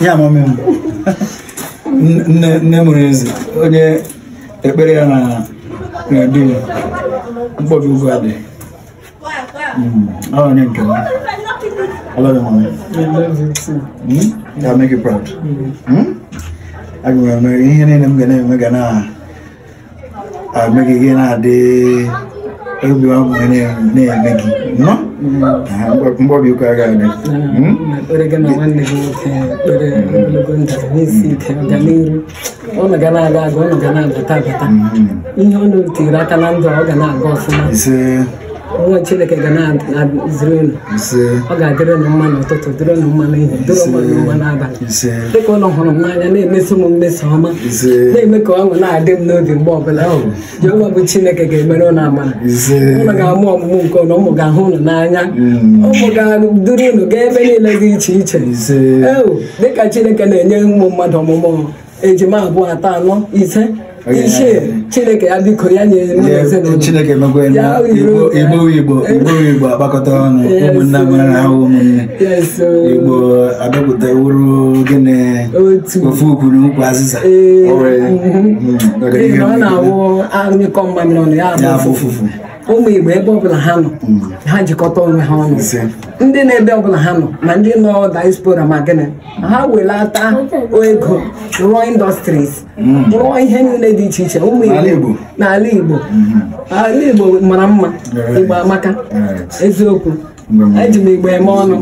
ya mami nne mụrụ eze onye ekpere ya na na ya mkpọbi ugwu adị ọ onye nke m I love you, mommy. I you Mm? you proud. Mm? Mm? Ihe niile m ga na-eme ga na na-eme gị na-adị mm. obi ọṅụ na-eme mm. hmm? gị na nwanne gị nwoke ekpere ogologo mm. ndụ n'isi ike na-aga aga ụnụ ga na-abata abata ihe ụnụ ọ ga na-aga nwa chineke ga na-eziri unu ọ ga-adịrị na mma n'ụtụtụ dịrị na mma n'ihi dịrị na mma n'abalị dịka ụlọ hụrụ m n'anya na-emesi m mmesa ọma na-eme ka ọṅụ na-adị m n'obi mgbe ọbụla oh. Jehova bụ chineke ga-emere ụlọ amara ụlọ ga-amụ ọmụmụ nke ụlọ ụmụ ga-ahụ ụlọ n'anya hmm. ụmụ ga-duru unu gaa ebe niile dị iche iche ewu oh, dịka chineke na-enye ụmụ mmadụ ọmụmụ ejima abụọ atọ anọ ise chineke ya na ya nyere chineke igbo igbo igbo igbo akpakọta ọnụ ụmụnne amara ahụ ụmụnne igbo abịapụta ofe oburu nkwu azịza ọ na-awụ anyịkọ mmamịrị ọnụ ya abụ ụfụfụ ụmụ Igbo ebe ọbụla ha nọ mm. ha jikọta onwe ha ọnụ ndị na-ebe ọbụla ha nọ na ndị nọ diaspora ma gịnị ha welata ego rụọ indọstries mm. rụọ ihe niile dị iche iche ụmụ Igbo n'ala Igbo mm-hmm. ala Igbo mara mma Igbo amaka eziokwu eji m Igbo eme ọnụ